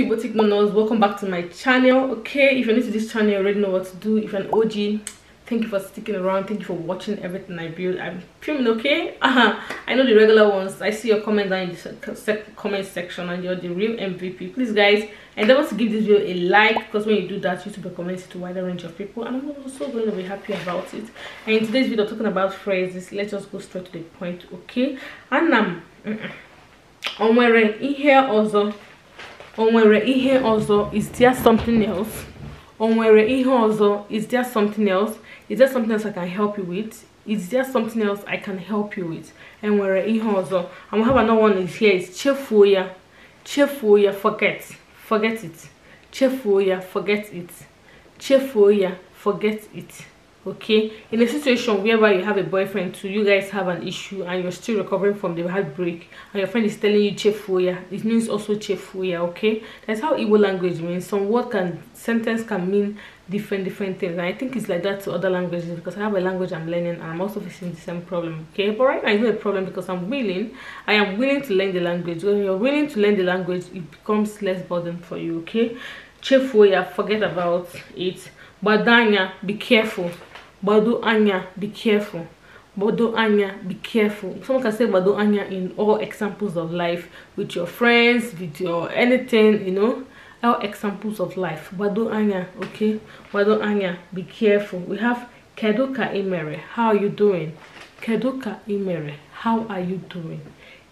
you boutique monos welcome back to my channel okay if you're new to this channel you already know what to do if you're an og thank you for sticking around thank you for watching everything i build i'm filming okay uh -huh. i know the regular ones i see your comments down in the comment section and you're the real mvp please guys endeavor to give this video a like because when you do that youtube recommends it to a wider range of people and i'm also going to be happy about it and in today's video talking about phrases let's just go straight to the point okay and I'm -mm. on my in here also o nwere ihe ọzọ is there something else o nwere ihe ọzọ is there something else is there something else i can help you with is there something else i can help you with e nwere ihe ọzọ and we have another one is here is chefuo ya chefuo ya forget forget it chefuo ya forget it chefuo ya forget it okay in a situation whereby you have a boyfriend too you guys have an issue and you're still recovering from the heartbreak and your friend is telling you chefuya it means also chefuya okay that's how Igbo language means some word can sentence can mean different different things and i think it's like that to other languages because i have a language i'm learning and i'm also facing the same problem okay but right now it's not a problem because i'm willing i am willing to learn the language when you're willing to learn the language it becomes less burden for you okay chefuya forget about it badanya be careful Bado Anya, be careful. Bado Anya, be careful. Someone can say Bado Anya in all examples of life, with your friends, with your anything, you know. All examples of life. Bado Anya, okay? Bado Anya, be careful. We have Keduka Imere. How are you doing? Keduka Imere. How are you doing?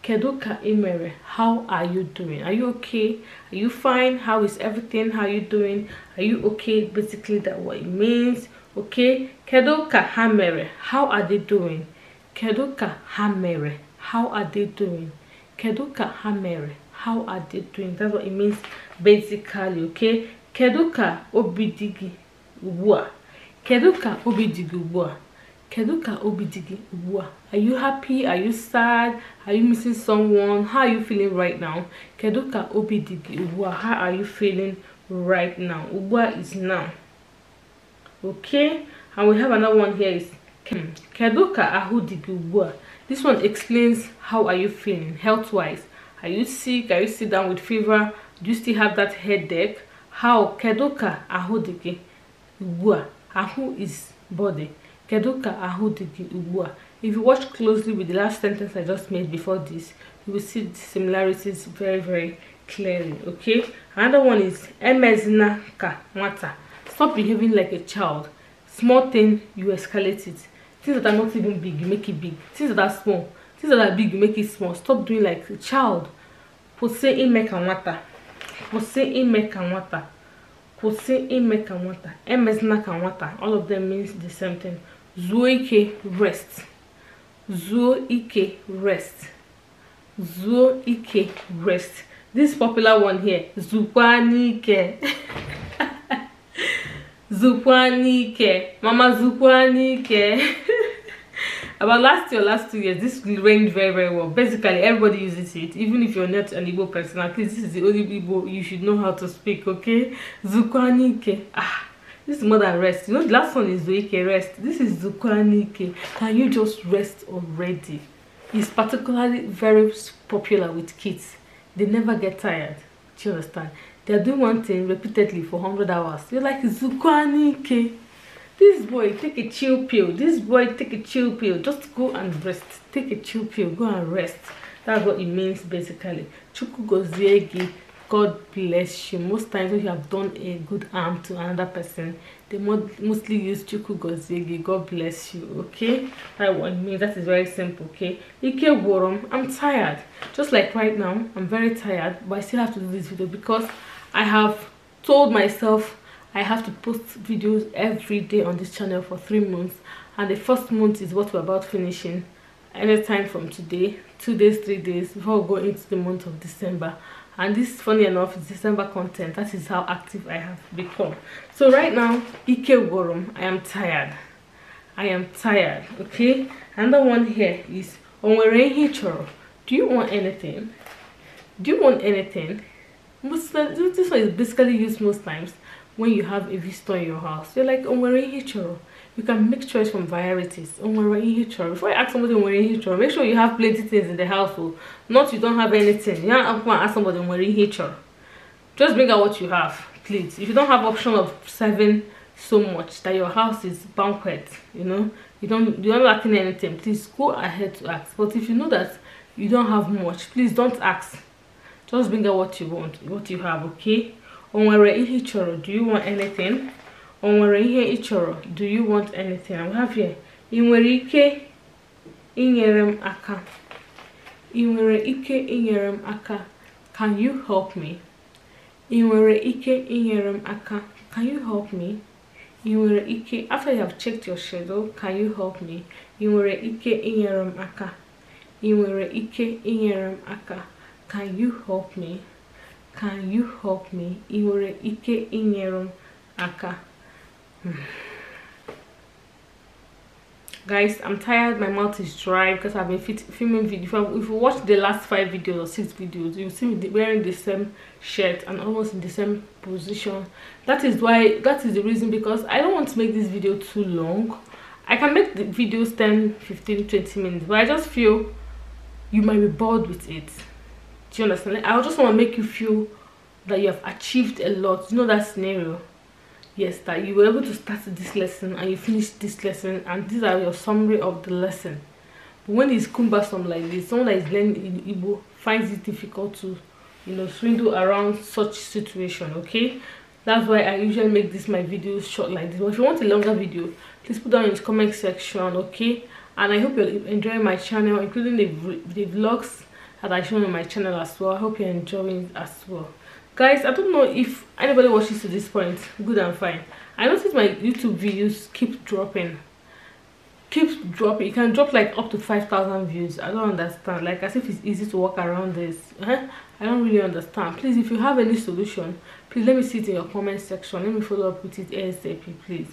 Keduka Imere, how are you doing? Are you okay? Are you fine? How is everything? How are you doing? Are you okay? Basically, that what it means okay kedu ka ha mere how are they doing kedu ka ha mere how are they doing kedu ka ha mere how are they doing that's what it means basically okay kedu ka obi dị gị ugbu a kedu ka obi dị gị ugbu a kedu ka obi dị gị ugbu a are you happy are you sad are you missing someone how are you feeling right now kedu ka obi dị gị ugbu a how are you feeling right now ugbu a is now okay and we have another one here is kedu ahudi this one explains how are you feeling health wise are you sick are you sitting down with fever do you still have that headache how Keduka ahudi ahụ ahụ is body Keduka ahudi ahụ if you watch closely with the last sentence i just made before this you will see the similarities very very clearly okay another one is emezina ka mata. stop behaving like a child small thing you escalate it things that are not even big you make it big things that are small things that are big you make it small stop doing like a child kwụsị ime ka nwata kwụsị ime ka nwata kwụsị ime ka nwata emezina ka nwata all of them means the same thing zuo ike rest zuo ike rest zuo ike rest this popular one here zukwa n'ike zukwa n'ike mama zukwa n'ike about last year last two years this went very very well basically everybody uses it even if you're not an igbo person at least this is the only igbo you should know how to speak okay zukwa n'ike ah this is more than rest you know the last one is zoike rest this is zukwa n'ike can you just rest already it's particularly very popular with kids they never get tired do you understand they're doing one thing repeatedly for 100 hours you're like zukwanike this boy take a chill pill this boy take a chill pill just go and rest take a chill pill go and rest that's what it means basically chukugoziegi god bless you most times when you have done a good harm to another person they mostly use chukugoziegi god bless you okay That's what it means that is very simple okay ike worum i'm tired just like right now i'm very tired but i still have to do this video because I have told myself I have to post videos every day on this channel for three months and the first month is what we're about finishing anytime from today two days three days before going into the month of December and this funny enough is December content that is how active I have become so right now Ike Worum I am tired I am tired okay another one here is Onwere Hichoro do you want anything do you want anything most this one is basically used most times when you have a visitor in your house you're like onwere ihichoro you can make choice from varieties onwere ihichoro before you ask somebody onwere ihichoro make sure you have plenty things in the household not you don't have anything you don't to ask somebody onwere ihichoro just bring out what you have please if you don't have option of serving so much that your house is banquet you know you don't you're not lacking anything please go ahead to ask but if you know that you don't have much please don't ask just bring out what you want what you have okay o nwere chọrọ do you want anything o nwere ihe chọrọ do you want anything i have here ị ike inyere m aka ị ike inyere aka can you help me ị ike inyere aka can you help me ị ike after you have checked your schedule can you help me ị ike inyere m aka ị ike inyere aka can you help me can you help me ị nwere ike inyere m aka guys i'm tired my mouth is dry because i've been filming videos. if you, watch the last five videos or six videos you see me wearing the same shirt and almost in the same position that is why that is the reason because i don't want to make this video too long i can make the videos 10 15 20 minutes but i just feel you might be bored with it do you understand i just want to make you feel that you have achieved a lot you know that scenario yes that you were able to start this lesson and you finished this lesson and these are your summary of the lesson but when it's cumbersome like this someone that is learning Igbo finds it difficult to you know swindle around such situation okay that's why i usually make this my videos short like this but if you want a longer video please put down in the comment section okay and i hope you're enjoying my channel including the, the vlogs as I show on my channel as well. I hope you're enjoying as well. Guys, I don't know if anybody watches to this point. Good and fine. I notice my YouTube videos keep dropping. Keep dropping. It can drop like up to 5,000 views. I don't understand. Like as if it's easy to work around this. Huh? Eh? I don't really understand. Please, if you have any solution, please let me see it in your comment section. Let me follow up with it ASAP, please.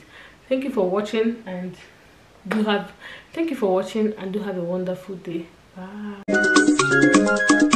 Thank you for watching and do have thank you for watching and do have a wonderful day. Bye. Thank you.